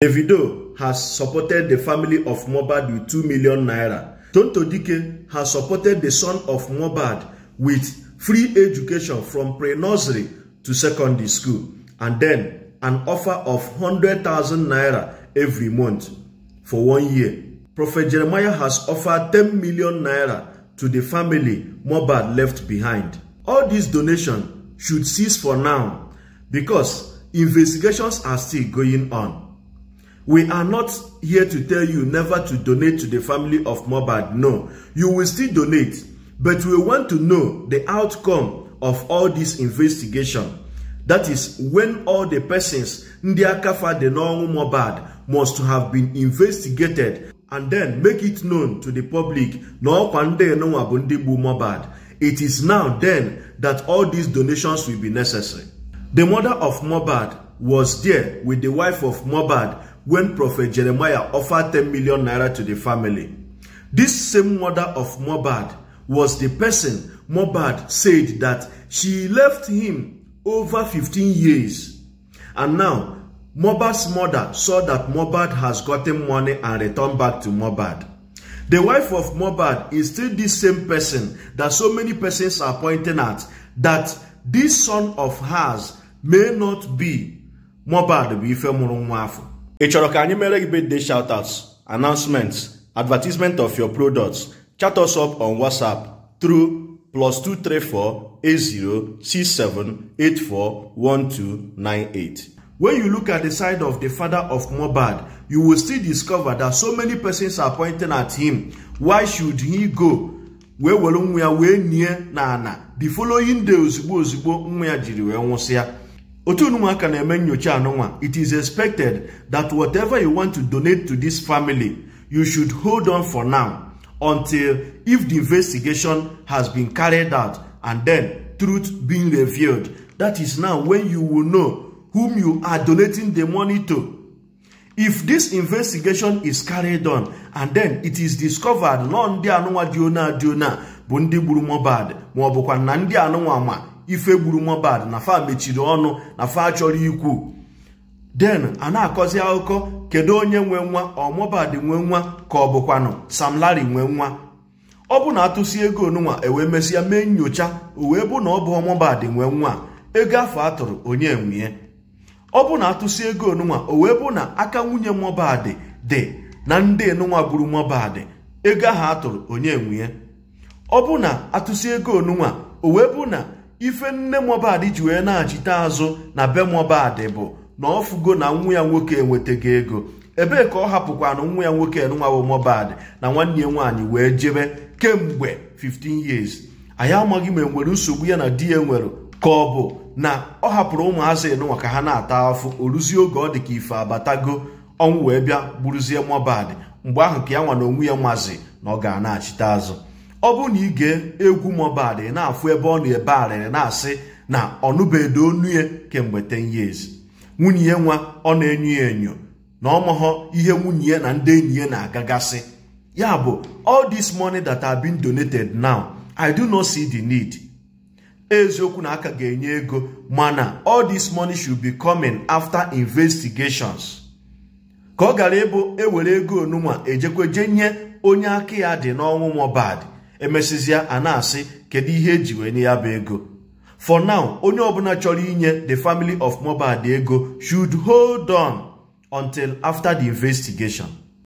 Davido has supported the family of Mohbad with 2 million naira. Tonto Dike has supported the son of Mohbad with free education from pre-nursery to secondary school and then an offer of 100,000 naira every month for one year. Prophet Jeremiah has offered 10 million naira to the family Mohbad left behind. All these donations should cease for now because investigations are still going on. We are not here to tell you never to donate to the family of Mobad. No, you will still donate, but we want to know the outcome of all this investigation. That is when all the persons Ndiakafa the normal Mobad must have been investigated and then make it known to the public it is now then that all these donations will be necessary. The mother of Mobad was there with the wife of Mobad when Prophet Jeremiah offered 10 million naira to the family. This same mother of Mobad was the person Mobad said that she left him over 15 years. And now, Mobad's mother saw that Mobad has gotten money and returned back to Mobad. The wife of Mobad is still the same person that so many persons are pointing at that this son of hers may not be Mobad bụ ife mụrụ ị chọrọ ka anyị mere gị birthday shoutouts announcements advertisement of your products chat us up on whatsapp through plus 2348067841298 When you look at the side of the father of Mobad, you will still discover that so many persons are pointing at him. Why should he go? wee were nwa ya wee nie na ana the following day ozugbo ozugbo nwa ya jiri wee nwụsịa Otu Otunumaka na-eme nyocha anụnwa it is expected that whatever you want to donate to this family you should hold on for now until if the investigation has been carried out and then truth being revealed that is now when you will know whom you are donating the money to if this investigation is carried on and then it is discovered na ndị anụnwa dị ona dị ona bụ ndị gburu Mohbad ma na ndị anụnwa ma ife gburu mobad na fa mechiri ọnụ na fa chọrọ ikwu den a na-akọzi akụkọ kedu onye nwe nwa ọ Mohbad nwe nwa ka ọ bụkwanụ Sam Larry nwe nwa ọ bụ na atụsi ego onunwa ewee mesịa mee nyocha o bụ na ọ bụ Mohbad nwe nwa ego afọ atụrụ onye nwunye ọ bụ na atụsi ego onunwa o bụ na aka nwunye Mohbad dị na ndị nunwa gburu Mohbad ego ahụ atụrụ onye nwunye ọ bụ na atụsi ego onunwa o bụ na ife nne Mohbad ji wee na-achite azụ na be Mohbad bụ na ọ fugo na nwa ya nwoke enwetaghị ego ebee ka ọ hapụkwana nwa ya nwoke enwawo Mohbad na nwanne ya nwaanyị wee jebe kemgbe 15 years anyị amaghị ma enwere nsogbu ya na di ya nwere ka ọ bụ na ọ hapụrụ ụmụazị enụnwa ka ha na-ata afụ oruzie oge ọ dị ka ife abatago ọnwụ wee bịa gburuzie Mohbad mgbe ahụ ka ya nwa na onwe ya nwazi na ọ ga na-achite azụ ọ bụrụ na ị egwu Mohbad ị na-afụ ebe ọ na-ebe arịrị na-asị na ọnụbedo onu ya kemgbe 10 years nwunye ya nwa ọ na-enyo ya enyo na ọmụghọ ihe nwunye ya na ndị enyi ya na-agagasị ya bụ all this money that have been donated now I do not see the need eziokwu na aka ga-enye ego mana all this money should be coming after investigations ka ọ gara ịbụ ewere ego onunwa ejekwa je nye onye aka ya dị n'ọnwụ Mohbad emesịzịa a na-asị kedu ihe eji wee nye ya bụ ego for now onye ọbụla chọrọ inye the family of Mohbad ego should hold on until after the investigation.